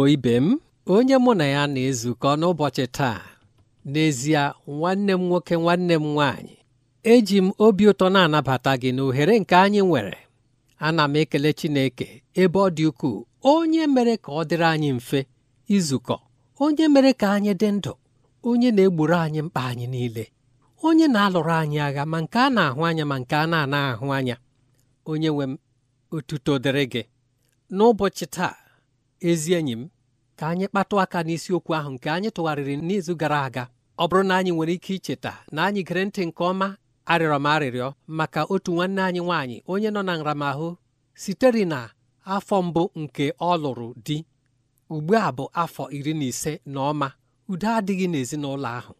Igbo ibe m onye mụ na ya na-ezukọ n'ụbọchị taa n'ezie nwanne m nwoke nwanne m nwaanyị eji m obi ụtọ na-anabata gị na ohere nke anyị nwere ana m ekele Chineke ebe ọ dị ukwuu onye mere ka ọ dịrị anyị mfe izukọ onye mere ka anyị dị ndụ onye na-egburu anyị mkpa anyị niile onye na-alụrụ anyị agha ma nke a na-ahụ anya ma nke a na-anaghị ahụ anya onye nwe m otuto dịrị gị n'ụbọchị taa ezi enyi m ka anyị kpatụ aka n'isiokwu ahụ nke anyị tụgharịrị n'izu gara aga ọ bụrụ na anyị nwere ike icheta na anyị gere ntị nke ọma arịrọ m arịrịọ maka otu nwanne anyị nwaanyị onye nọ na nramahụ sitere na afọ mbụ nke ọ lụrụ di ugbu a bụ afọ iri na ise na ọma udo adịghị n'ezinụlọ ahụ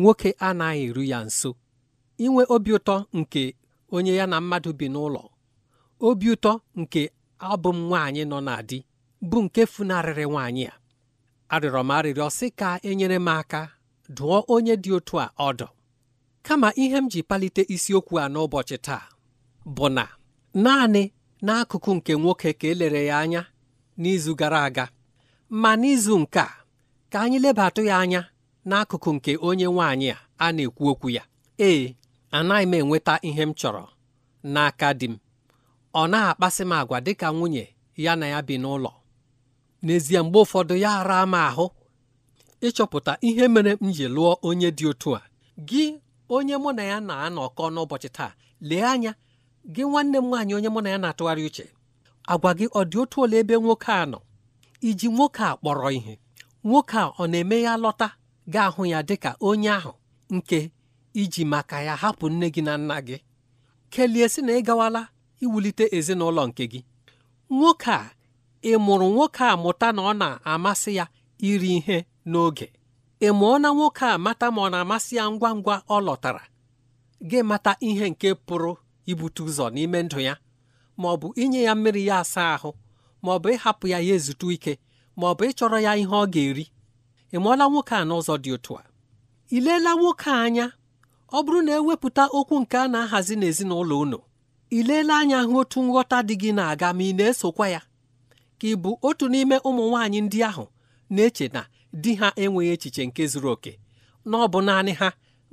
nwoke anaghị eru ya nso inwe obi ụtọ nke onye ya na mmadụ bi n'ụlọ obi ụtọ nke abụ m nwaanyị nọ na di bụ nke funarịrị nwaanyị a arịrọ m arịrịọ sị ka enyere m aka dụọ onye dị otu a ọdụ kama ihe m ji palite isiokwu a n'ụbọchị taa bụ na naanị n'akụkụ nke nwoke ka elere ya anya n'izu gara aga ma n'izu nke a ka anyị lebatụ ya anya n'akụkụ nke onye nwaanyị a a na-ekwu okwu ya ee anaghị m enweta ihe m chọrọ n'aka di m ọ na-akpasị m agwa dịka nwunye ya na ya bi n'ụlọ n'ezie mgbe ụfọdụ ya ara m ahụ ịchọpụta ihe mere m ji lụọ onye dị otu a gị onye mụ na ya na-anọkọ n'ụbọchị taa lee anya gị nwanne m nwaanyị onye mụ na ya na-atụgharị uche agwa gị ọ dị otu ole ebe nwoke a nọ iji nwoke a kpọrọ ihe nwoke a ọ na-eme ya lọta ga-ahụ ya dịka onye ahụ nke iji maka ya hapụ nne gị na nna gị kelie sị na ị gawala iwulite ezinụlọ nke gị nwoke a ị mụrụ nwoke a mụta na ọ na-amasị ya iri ihe n'oge ị mụọna nwoke a mata ma ọ na-amasị ya ngwa ngwa ọ lọtara gị mata ihe nke pụrụ ibute ụzọ n'ime ndụ ya ma ọ bụ inye ya mmiri ya asa ahụ ma ọ bụ ịhapụ ya ya ezute ike ma ọ bụ ịchọrọ ya ihe ọ ga-eri ị mụọla nwoke a n'ụzọ dị otu a ị leela nwoke a anya ọ bụrụ na ewepụta okwu nke a na-ahazi n'ezinụlọ unu ị leela anya hụ otu nghọta dị gị na-aga ma ị na-esokwa ya ka ị bụ otu n'ime ụmụ nwaanyị ndị ahụ na-eche na di ha enweghị echiche nke zuru oke na ọ bụ naanị ha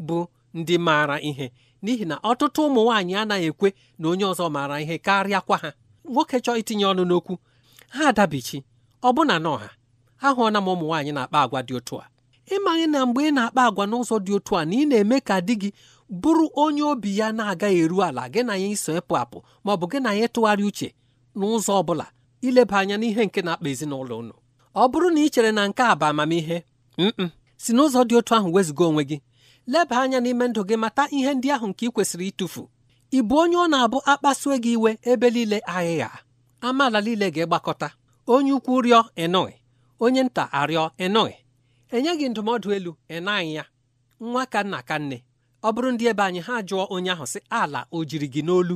bụ ndị maara ihe n'ihi na ọtụtụ ụmụ nwaanyị anaghị ekwe na onye ọzọ maara ihe karịakwa ha nwoke chọọ itinye ọnụ n'okwu ha adabichi ọbụna na ọha ahụọna m ụmụ nwaanyị na-akpa agwa dị otu a ịmaghị na mgbe ị na-akpa agwa n'ụzọ dị otu a na ị na-eme ka di gị bụrụ onye obi ya na-agaghị eru ala gị na ya iso ịpụ apụ ma ọ bụ gị na ya ịtụgharị uche n'ụzọ ọ bụla ileba anya n'ihe nke na-akpa ezinụlọ unu ọ bụrụ na ị chere na nke a bụ amamihe mm si n'ụzọ dị otu ahụ wezụga onwe gị leba anya n'ime ndụ gị mata ihe ndị ahụ nke ị kwesịrị ịtụfu ị bụ onye ọ na-abụ akpasue gị iwe ebe niile ahịhịa amaala niile ga-egbakọta onye ukwu rịọ ịnụghị onye nta arịọ ịnụghị gị ndụmọdụ elu ịnaghị ya nwa ka nna ka nne ọ bụrụ ndị ebe anyị ha jụọ onye ahụ sị ala o jiri gị n'olu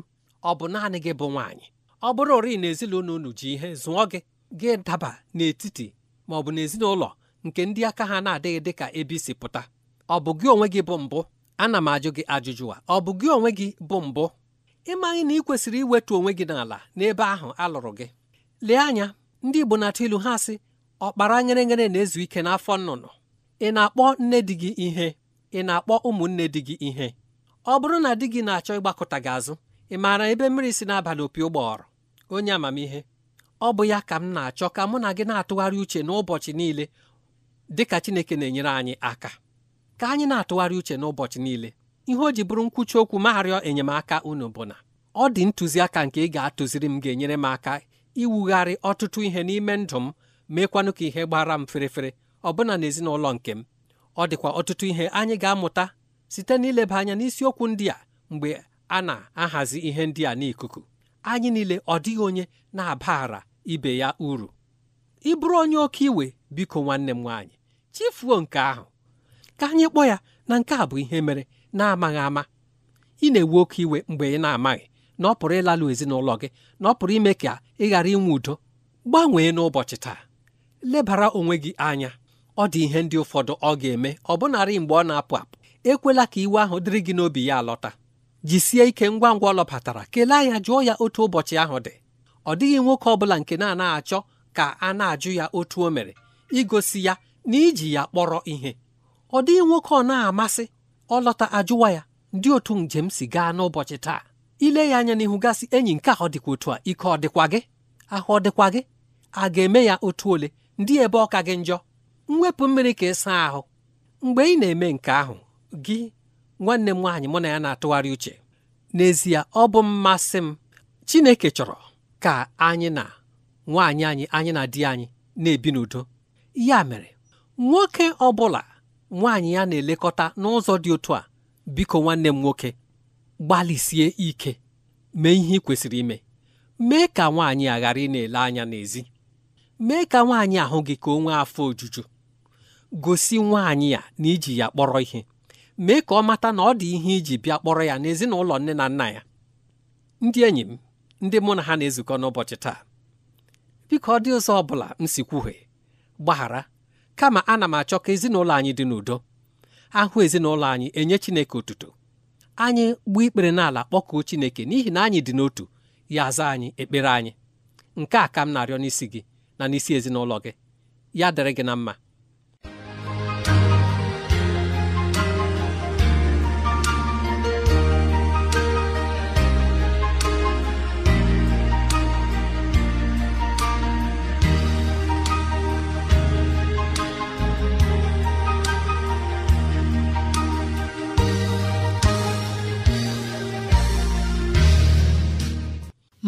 ọ bụ naanị gị bụ nwaanyị ọ bụrụ ori na ezinụlọ unu ji ihe zụọ gị gị daba n'etiti ma ọ bụ n'ezinụlọ nke ndị aka ha na-adịghị dị ka ebe isi pụta ọ bụ gị onwe gị bụ mbụ ana m ajụ gị ajụjụ a ọ bụ gị onwe gị bụ mbụ ịmaghị na ị kwesịrị iwetu onwe gị n'ala n'ebe ahụ a lụrụ gị lee anya ndị Igbo na-atụ ilu ha sị ọkpara nyere na-ezu ike n'afọ nnụnụ ị na-akpọ nne di gị ihe ị na-akpọ ụmụnne di gị ihe ọ bụrụ na di gị na-achọ ịgbakọta gị azụ ị maara ebe mmiri si n'abalị opi ụgbọọrụ onye amamihe ọ bụ ya ka m na-achọ ka mụ na gị na-atụgharị uche n'ụbọchị niile dị ka Chineke na-enyere anyị aka ka anyị na-atụgharị uche n'ụbọchị niile ihe o ji bụrụ nkwuchi okwu ma enyemaka unu bụ na ọ dị ntụziaka nke ị ga-atụziri m ga-enyere m aka iwugharị ọtụtụ ihe n'ime ndụ m meekwanụ ka ihe gbara m ferefere ọbụna n'ezinụlọ nke m ọ dịkwa ọtụtụ ihe anyị ga-amụta site n'ileba anya n'isiokwu ndị a mgbe a na-ahazi ihe ndị a n'ikuku anyị niile ọ dịghị onye na-abara ibe ya uru ị bụrụ onye oke iwe biko nwanne m nwaanyị chifuo nke ahụ ka anyị kpọọ ya na nke a bụ ihe mere na-amaghị ama ị na-ewe oke iwe mgbe ị na-amaghị na ọ pụrụ ịlalụ ezinụlọ gị na ọ pụrụ ime ka ị ghara inwe udo gbanwee n'ụbọchị taa lebara onwe gị anya ọ dị ihe ndị ụfọdụ ọ ga-eme ọ mgbe ọ na-apụ apụ ekwela ka iwe ahụ dịrị gị n'obi ya alọta jisie ike ngwa ngwa ọ kelee ya jụọ ya otu ụbọchị ahụ dị ọ dịghị nwoke ọbụla nke na-anaghị achọ ka a na-ajụ ya otu o mere igosi ya na iji ya kpọrọ ihe ọ dịghị nwoke ọ na-amasị ọ lọta ajụwa ya ndị otu njem si gaa n'ụbọchị taa ile ya anya n'ihu gasị enyi nke ahụ dịkwa otu a ike ọ dịkwa gị ahụ ọ dịkwa gị a ga-eme ya otu ole ndị ebe ọka gị njọ mwepụ mmiri ka ịsa ahụ mgbe ị na-eme nke ahụ gị nwanne m nwaanyị mụ na ya na-atụgharị uche n'ezie ọ bụ mmasị m Chineke chọrọ ka anyị na nwaanyị anyị anyị na di anyị na-ebi n'udo ya mere nwoke ọ bụla nwaanyị ya na-elekọta n'ụzọ dị otu a biko nwanne m nwoke gbalịsie ike mee ihe ị kwesịrị ime mee ka nwaanyị a ghara ị na-ele anya n'ezi mee ka nwaanyị ahụ gị ka o nwee afọ ojuju gosi nwaanyị ya na iji ya kpọrọ ihe mee ka ọ mata na ọ dị ihe iji bịa kpọrọ ya n'ezinụlọ nne na nna ya ndị enyi m ndị mụ na ha na-ezukọ n'ụbọchị taa biko ọ dị ụzọ ọ bụla m si kwuhie gbaghara kama ana m achọ ka ezinụlọ anyị dị n'udo ahụ ezinụlọ anyị enye Chineke otuto anyị gbuo ikpere n'ala kpọkuo Chineke n'ihi na anyị dị n'otu ya aza anyị ekpere anyị nke a ka m na-arịọ n'isi gị na n'isi ezinụlọ gị ya dịrị gị na mma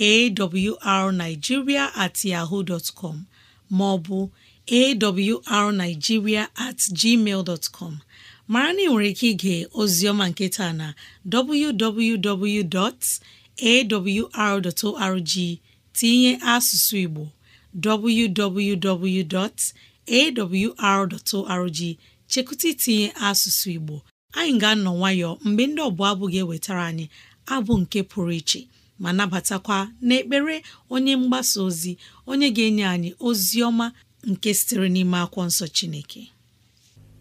awrnigeria at yaho dot com maọbụ awrnigeria at gmail com mara na ị nwere ike ige ozioma nketa na www.awr.org tinye asụsụ Igbo www.awr.org chekụta itinye asụsụ Igbo anyị ga-anọ nwayọọ mgbe ndị ọbụla abụ ga-ewetara anyị abụ nke pụrụ iche ma nabatakwa n'ekpere onye mgbasa ozi onye ga-enye anyị ozi ọma nke sitere n'ime akwụkwọ nsọ Chineke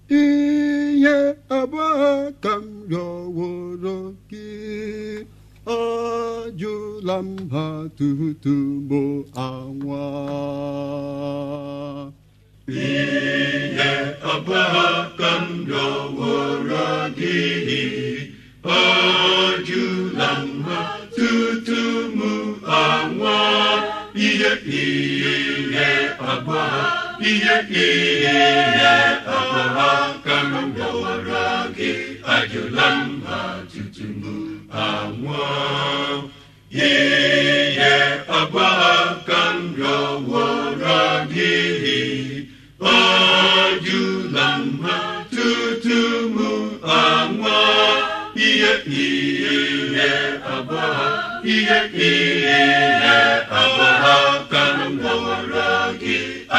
ihe abụọ ka m rịọworo gị ọ jụla m ha bụ anwa ihe abụọ ka m rịọworo gị ọ jụ nwa ihe ihe agwa ihe ihe agwa ha ka m bịawara gị ajụla mba tutu m anwụọ ihe agwa ka m gị ajụla mba tutu m ihe ihe agwa ihe ihe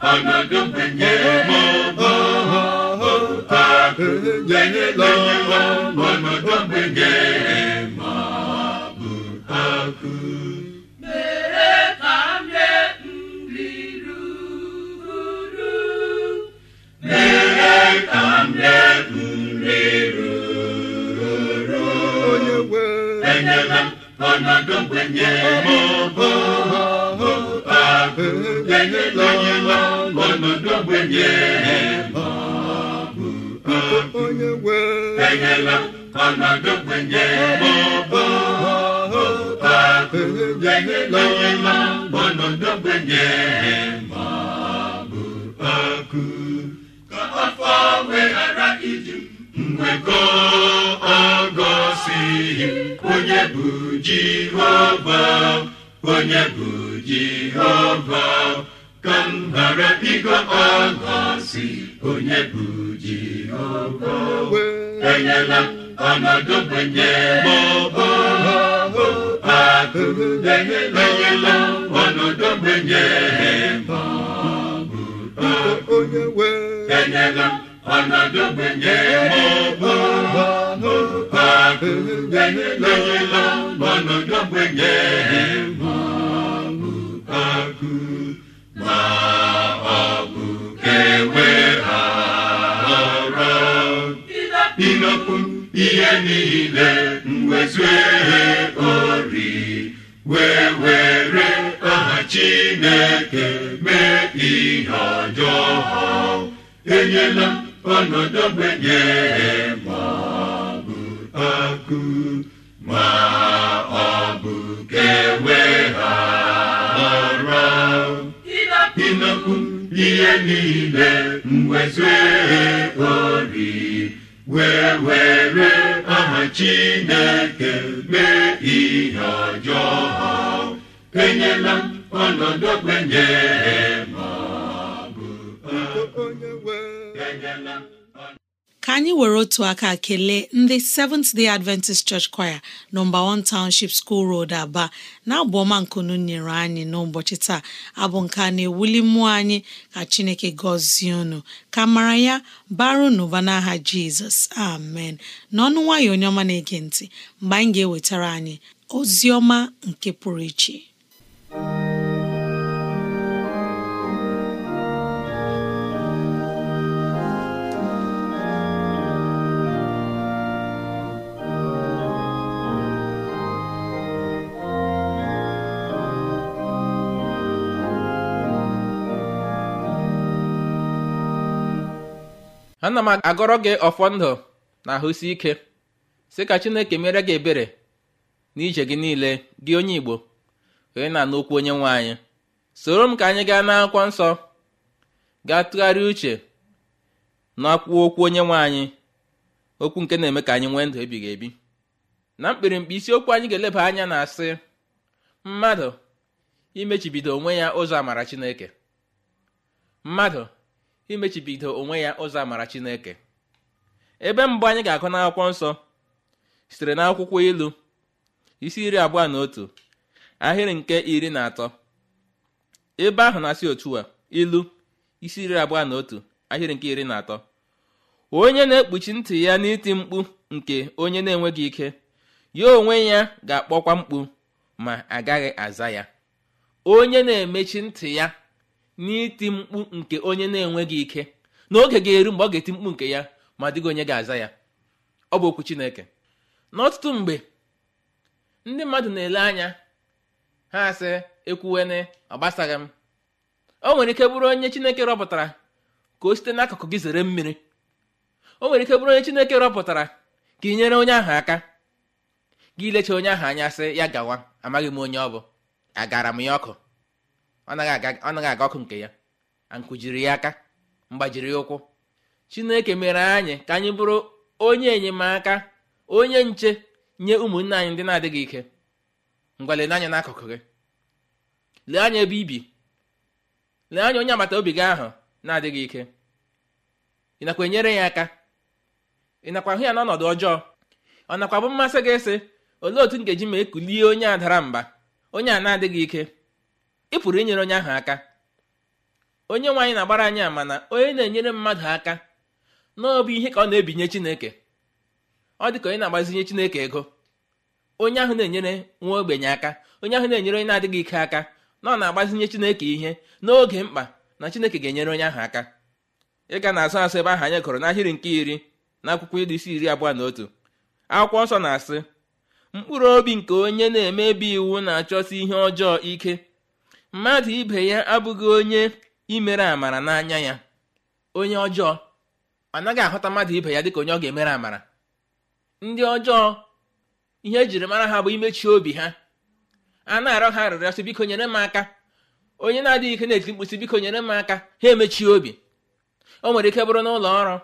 agagambenye mama agenye lọlọ mọnọdọgbenye ma bụ akụ. nri ruru mere ka ọnọdụ mgbenye mọbụ ahụ enyela onye nọ ọnọdụ mgbenye mọbụ ahụ enyela ọnọdụ mgbenye mọbụ ahụ enyela onye nọ mgbekọ agọsighị onye bụ jehova onye bụ jehova ka m ghara ịgọ agọsi onye bụ jehova enyela ọnọdụ gbenye maọbụ akụ enyela ọnọdụ gbenye maọbụ akụ enyela ọnọdụ gbenye mọbọ mọbọ akụbenilọlọ ọnọdụ gbenye mọbọ akụ ma ọ bụ kewe ha ọrọ inokwu ihe niile mwezue ori wee were aha chineke mee ihe ọjọọ enyela ọnọdụ ogbenye ma ọ bụ ma ọ bụ kewe ha ọrọ ịnọkwu ihe niile mwezue ori wee were aha chineke mee ihe ọjọọ ha enyela ọnọdụ ogbenye ma ọ bụ onye ka anyị were otu aka kelee ndị Seventh Day Adventist Church Choir nọmba 1 Township School Road Aba na abụ ọma nkunu nyere anyị n'ụbọchị taa abụ nke a na-ewuli mmụọ anyị ka Chineke gọzie unu ka mara ya baru n'ụba n'aha Jizọs amen n'ọnụ nwayọ onye ọma na-ege ntị mgbe anyị ga-ewetara anyị ozi ọma nke pụrụ iche ana m agọrọ gị ọfọ ndụ na ahụsi ike sị ka chineke mere gị ebere n'ije gị niile gị onye igbo onye na-anụ okwu onye nwe anyị soro m ka anyị gaa n'akwụkwọ nsọ gaa tụgharịa uche n'akwụkwọ okwu onye nwe anyị okwu nke na-eme ka anyị nwee ndụ ebighị ebi na mkpirimkpi isiokwu anyị ga-eleba anya na-asị mmadụ imechibido onwe ya ụzọ amara chineke mmadụ imechibido onwe ya ụzọ amara chineke ebe mbụ anyị ga-akụ n'akwụkwọ nsọ sitere n'akwụkwọ ilu isi iri abụọ na otu ahịrị nke iri na atọ ebe ahụ na-asị otu a ilu isi iri abụọ na otu ahịrị nke iri na atọ onye na-ekpuchi ntị ya n'iti mkpu nke onye na-enweghị ike ya onwe ya ga-akpọkwa mkpu ma agaghị aza ya onye na-emechi ntị ya n'iti mkpu nke onye na-enweghị ike na oge ga-eru mgbe ọ ga-eti mkpu nke ya ma dịghị onye ga-aza ya ọ bụ okwu Chineke n'ọtụtụ mgbe ndị mmadụ na-ele anya ha sị ekwuwene ọ gbasaghị m o nwere ike bụrụ onye Chineke rọpụtara ka o site n'akụkụ gị zere mmiri o nwere ike bụrụ onye Chineke rọpụtara ka ị nyere onye ahụ aka gị ilecha onye ahụ anya sị ya gawa amaghị m onye ọ bụ agara m ya ọkụ ọ naghị aga ọkụ nke ya ankụjiri ya aka mgbajiri ụkwụ chineke mere anyị ka anyị bụrụ onye enyemaka onye nche nye ụmụnne anyị ndị na-adịghị ike ngwalele anya n'akụkụ gị lee anya ebe ibi lee anya onye agbata obi gị ahụ na-adịghị ike ị nakwa enyere ya aka ị nakwa hụ ya n'ọnọdụ ọjọọ ọ nakwa bụ mmasị gị sị olee otu nkeji ma ekulie onye a dara mba onye a na-adịghị ike ị pụrụ inyere onye ahụ aka onye nwe na-agbara anyị ama na onye na-enyere mmadụ aka n'ọbụ ihe ka ọ na-ebinye chineke ọ dị ka onye na-agbazinye chineke ego onye ahụ na-enyere nwa ogbenye aka onye ahụ na-enyere onye na-adịghị ike aka na ọ na-agbazinye chineke ihe n'oge mkpa na chineke ga-enyere onye ahụ aka ịga na-azụ asụ ebe ahụ anyị gụrụ n'ahịrị nke iri na akwụkwọ ilu isi iri abụọ na otu akwụkwọ nsọ na-asị mkpụrụ obi nke onye na-emebi iwu na-achọsi ihe ọjọọ ike mmadụ ibe ya abụghị onye imere amara n'anya ya onye ọjọọ ọ naghị ahụta mmadụ ibe ya dịka onye ọ ga-emere amara ndị ọjọọ ihe ejiri mara ha bụ imechi obi ha a na arọ ha arịrịọ biko nyere m aka onye na-adịghị ike na-eti mkpu sị biko nyere m aka ha emechi obi o nwere ike bụrụ n'ụlọ ọrụ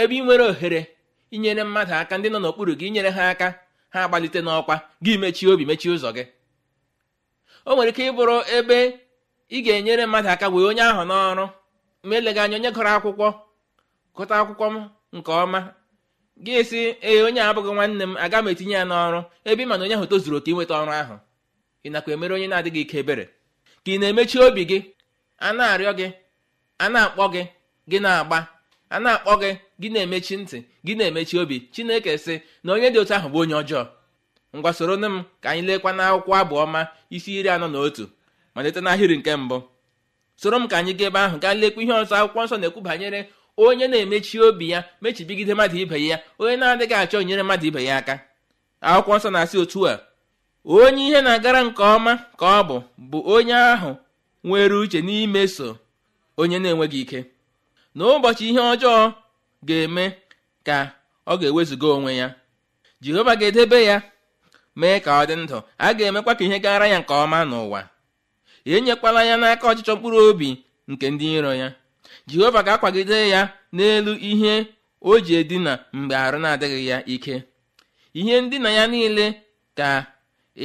ebe ị nwere ohere inyere mmadụ aka ndị nọ n'okpuru gị inyere ha aka ha agbalite n'ọkwa gị mechie obi mechie ụzọ gị o nwere ike ịbụrụ ebe ị ga-enyere mmadụ aka wee onye ahụ n'ọrụ ma eleghị anya onye gụrụ akwụkwọ gụta akwụkwọ m nke ọma gị si ee onye abụghị nwanne m aga m etinye ya n'ọrụ ebe ị mana onye ahụ tozuru oke inweta ọrụ ahụ ị nakwa emere onye na-adịghị ike ebere ka ị na-emechi obi gị a na-arịọ gị a na-akpọ gị gị na-agba a na-akpọ gị gị na-emechi ntị gị na-emechi obi chineke sị na onye dị otu ahụ bụ onye ọjọọ ngwa soro nne m ka anyị lekwa n'akwụkwọ abụ ọma isi iri anọ na otu malite n'ahịrị nke mbụ soro m ka anyị gaa ebe ahụ gaa lekwa ihe ọzọ akwụkwọ nsọ na-ekwu banyere onye na-emechi obi ya mechibigide mmadụ ibe ya onye na-adịghị achọ nyere mmadụ ibe ya aka akwụkwọ nsọ na-asị otu a onye ihe na-agara nke ọma ka ọ bụ bụ onye ahụ nwere uche n'imeso onye na-enweghị ike na ụbọchị ihe ọjọọ ga-eme ka ọ ga-ewezuga onwe ya jehova ga-edebe ya mee ka ọ dị ndụ a ga-emekwa ka ihe gara ya nke ọma n'ụwa enyekwala ya n'aka ọchịchọ mkpụrụ obi nke ndị iro ya jehova ga-akwagide ya n'elu ihe o ji edina mgbe arụ na-adịghị ya ike ihe ndina ya niile ka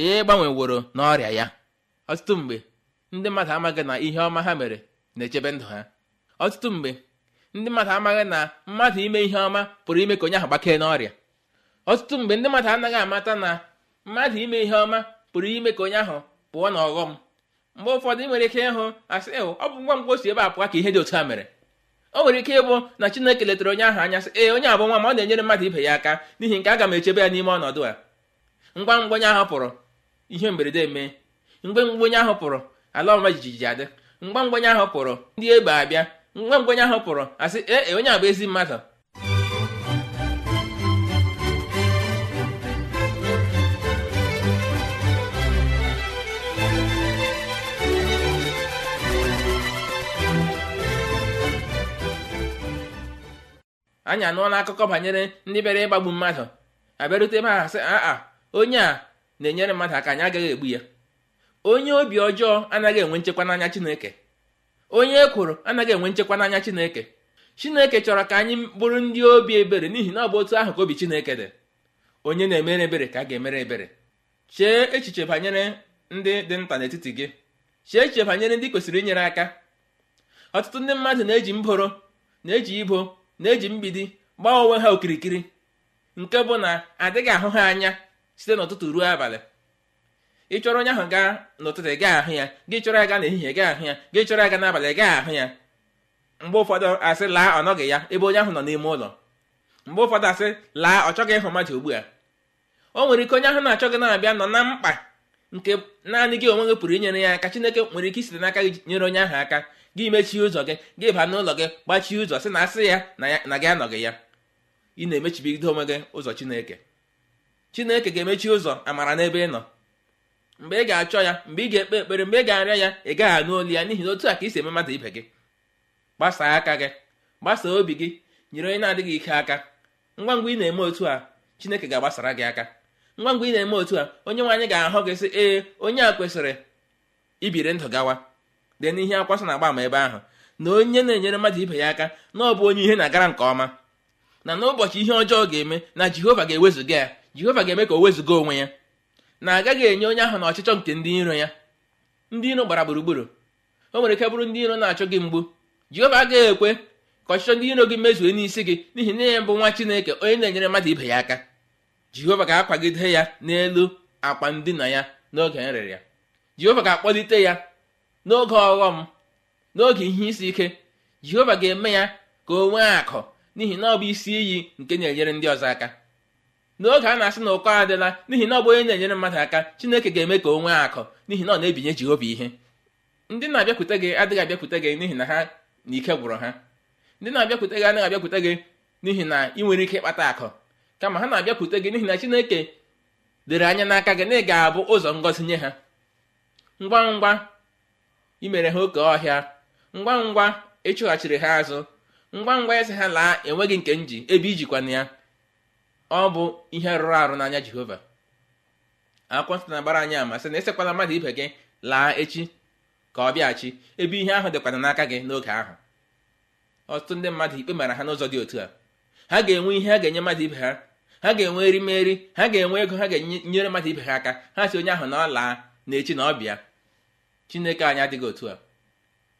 ị e gbanweworo n'ọrịa ya ọtụtụ mgbe ndị mmadụ amaghị na ihe ọma ha mere na-echebe ndụ ha ọtụtụ mgbe ndị mmadụ amaghị na mmadụ ime ihe ọma pụrụ ime ka onye ahụ gbakee n'ọrịa ọtụtụ mgbe ndị mmadụ anaghị amata na mmadụ ime ihe ọma pụrụ ime ka onye ahụ pụọ na ọghọm mgbe ụfọdụ ị nwere ike ịhụ asị ịhụ ọ bụ ngwa mgbe ebe a pụọ ka ihe dị otu a mere o nwere ike ịbụ na Chineke letara onye ahụ anya sị ee onye abụ nwa ma ọ na-enyere mmadụ ibe ya aka n'ihi nke aga m echebe ya n'ime ọnọdụ a ngwa ngwa onye ahụ pụrụ ihe mberede mee mgbe onye ahụ pụrụ ala ọma jijiji adị mgba mgbe onye ahụ pụrụ ndị egbe abịa mgba onye ahụ pụrụ asị ee onye abụ ezi mmadụ anyị anụọla akụkọ banyere ndị bịara ịgbagbu mmadụ abịarute ma ahasị a. aa onye a na-enyere mmadụ aka anyị agaghị egbu ya onye obi ọjọọ anaghị enwe nchekwa n'anya chineke onye e kwuru anaghị enwe nchekwa n'anya chineke chineke chọrọ ka anyị bụrụ ndị obi ebere n'ihi na ọ bụ otu ahụ ka obi chineke dị onye na-emere ebere ka a ga-emere ebere chee echiche banyere ndị dị nta n'etiti gị chee echiche banyere ndị kwesịrị inyere aka ọtụtụ ndị mmadụ na-eji mboro na-eji ibo na-eji mgbidi gbaa onwe ha okirikiri nke bụ na adịghị ahụ ha anya site n'ụtụtụ ruo abalị ị chọrọ onye ahụ gaa n'ụtụtụ gaa ahụ ya gị chọrọ aga n'ehihie gaa ahụ ya gị chọrọ aga n'abalị gaa ahụ ya mgbe ụfọdụ asị laa ọ nọghị ya ebe onye ahụ nọ n'ime ụlọ mgbe ụfọdụ asị laa ọ chọghị ịhụ mmadụ ugbu a o nwere ike onye ahụ na-achọghị na-abịa nọ na mkpa nke naanị gị onwe gị pụrụ inyere ya aka chineke nwere ike isite n'aka gị nyere onye ahụ aka gị mechie ụzọ gị gị baa n'ụlọ gị gbachie ụzọ sị na asị ya na gị anọghị ya ị na-emechibido onwe gị ụzọ chineke chineke ga-emechi ụzọ amara n'ebe ị nọ mgbe ị ga-achọ ya mgbe ị ga-ekpe ekpere mgbe ị ga arịa ya ị gaghị anụ olu ya n'ihi na otu a ka isi eme mmadụ ibe gị gbasaa aka gị gbasaa obi gị nyere onye na-adịghị ike aka ngwa ngwa ị na-eme otu a chineke ga-agbasara gị aka ngwa ngwa ị na-eme otu a onye nwe anyị ga-ahụ gị sị ee onye a kwesịrị ibiri ndụ gawa dee n'ihe akwasa na-agba ama ebe ahụ na onye na-enyere mmadụ ibe ya aka na ọ bụ onye ihe na-agara nke ọma na n'ụbọchị ihe ọjọọ ga-eme na jehova ga-ewezụga ya jehova ga-eme ka o wezụga onwe ya na agaghị enye onye ahụ na ọchịchọ nke ndị iro ya ndị iro gbara gburugburu o nwere ike bụrụ ndị iro na-achọ gị mgbu jehova agaghị ekwe ka ọchịchọ ndị iro gị mezue n'isi gị n'ihi na ya bụ nwa chineke onye na-enyere mmadụ ibe ya aka jehova ga-akwagide ya n'elu akwa ndina ya n'oge nrịrịa jehova ga-akpọlite ya n'oge ọghọm n'oge ihe isi ike jehova ga-eme ya ka o nwee akụ n'ihi na ọ bụ isi iyi nke na-enyere ndị ọzọ aka n'oge a na-asị na ụkọ adịla n'ihi na ọ bụ onye na-enyere mmadụ aka chineke ga-eme ka o nwee akụ n'ihi na ọ na-ebinye jehova ihe ndị na-abịakwute gị adịghị abịakwute gị n'ihi na ha na ike gwụrụ ha ndị na-abịakwute gị anaghị abịakwute gị n'ihi na ị nwere ike ịkpata akụ kama ha na-abịakwute gị n'ihi na chineke dere anya n'aka gị na ị ga-abụ ụzọ ngọzi nye ha ngwa ngwa imere ha oke ọhịa ngwa ngwa ịchụghachiri e ha azụ ngwa ngwa eze ha laa enweghị nke m ji ebe ijikwana ya ọ bụ ihe rụrụ arụ n'anya jehova akwụkwọ nsọ na-agbara anyị ama sị na esekwala mmadụ ibe gị laa echi ka ọ bịaghachi ebe ihe ahụ dịkwana n'aka gị n'oge ahụ ọtụtụ ndị mmadụ ikpe mara ha n'ụzọ dị otu a ha ga-enwe ihe ha ga-enye mmadụ ibe ha ha ga-enwe erimeri ha ga-enwe ego ha ga-enyere mmadụ ibe ha aka ha si onye ahụ na ọ laa na echi na ọ bịa chineke anyị adịghị otu a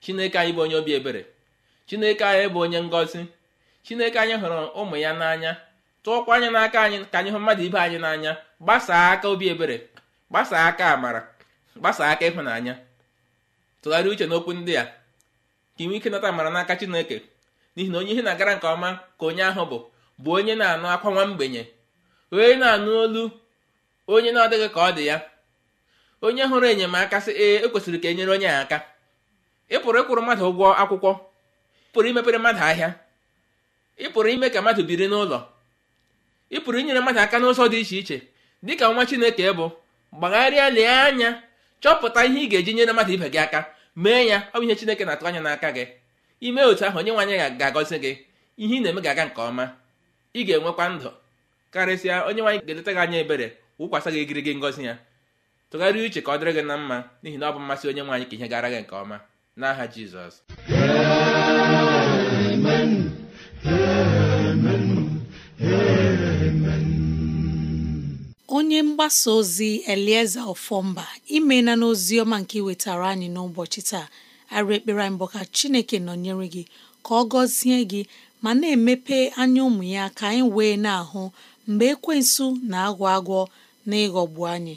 chineke anyị bụ onye obi ebere chineke anyị bụ onye ngozi chineke anyị hụrụ ụmụ ya n'anya tụọkwa anya n'aka anyị ka anyị hụ mmadụ ibe anyị n'anya gbasaa aka obi ebere gbasaa aka amara gbasaa aka ịhụnanya tụgharịa uche n'okwu ndị a ka inwe ike nata amara n'aka chineke n'ihi na onye ihe na-agara nke ọma ka onye ahụ bụ bụ onye na-anụ akwa nwa mgbenye onye na-anụ olu onye na-adịghị ka ọ dị ya onye hụrụ enyemaka sị ee ekwesịrị ka e nyere onye aka ị pụrụ ịkwụrụ mmadụ ụgwọ akwụkwọ ịpụrụ pụrụ imepere mmadụ ahịa ịpụrụ ime ka mmadụ biri n'ụlọ ịpụrụ inyere mmadụ aka n'ụzọ dị iche iche dịka nwa chineke bụ gbagharịa lee anya chọpụta ihe ị ga-eji nyere mmadụ ibe gị aka mee ya ọ bụ ihe chineke na-atụ anya n'aka gị ime otu ahụ onye nwanyị ga-agọzi gị ihe ị na-eme ga-aga nke ọma ị ga-enwekwa ndụ karịsịa onye nwe ga-eleta gị anya ebere wụkwasị gị egirigi ya tụgharịa uche ka ọ dịrị gị na mma n'ihi na ọ bụ mmasị onye nwaanyị ka ihe gara gị nke ọma n'aha jizọs onye mgbasa ozi elieze ofọmba imena n'ozi oziọma nke iwetara anyị n'ụbọchị taa arụ ekpere mbụ ka chineke nọnyere gị ka ọ gọzie gị ma na-emepe anya ụmụ ya ka anyị wee na-ahụ mgbe ekwensu na-agwọ agwọ na ịghọgbu anyị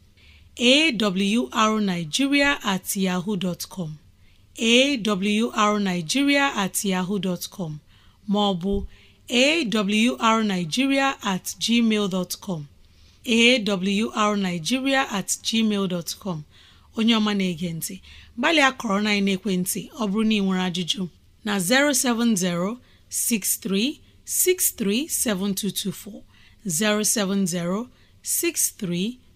awrnigeria at yahoo dot com awrnigeria at yahoo dot com maọbụ awrnigeria at gmail dot com awrnigeria at gmail dot com onye ọma na-ege ntị gbalịa kọrọ na ekwentị ọ bụrụ na ị nwere ajụjụ na 070 6363 7224 070 63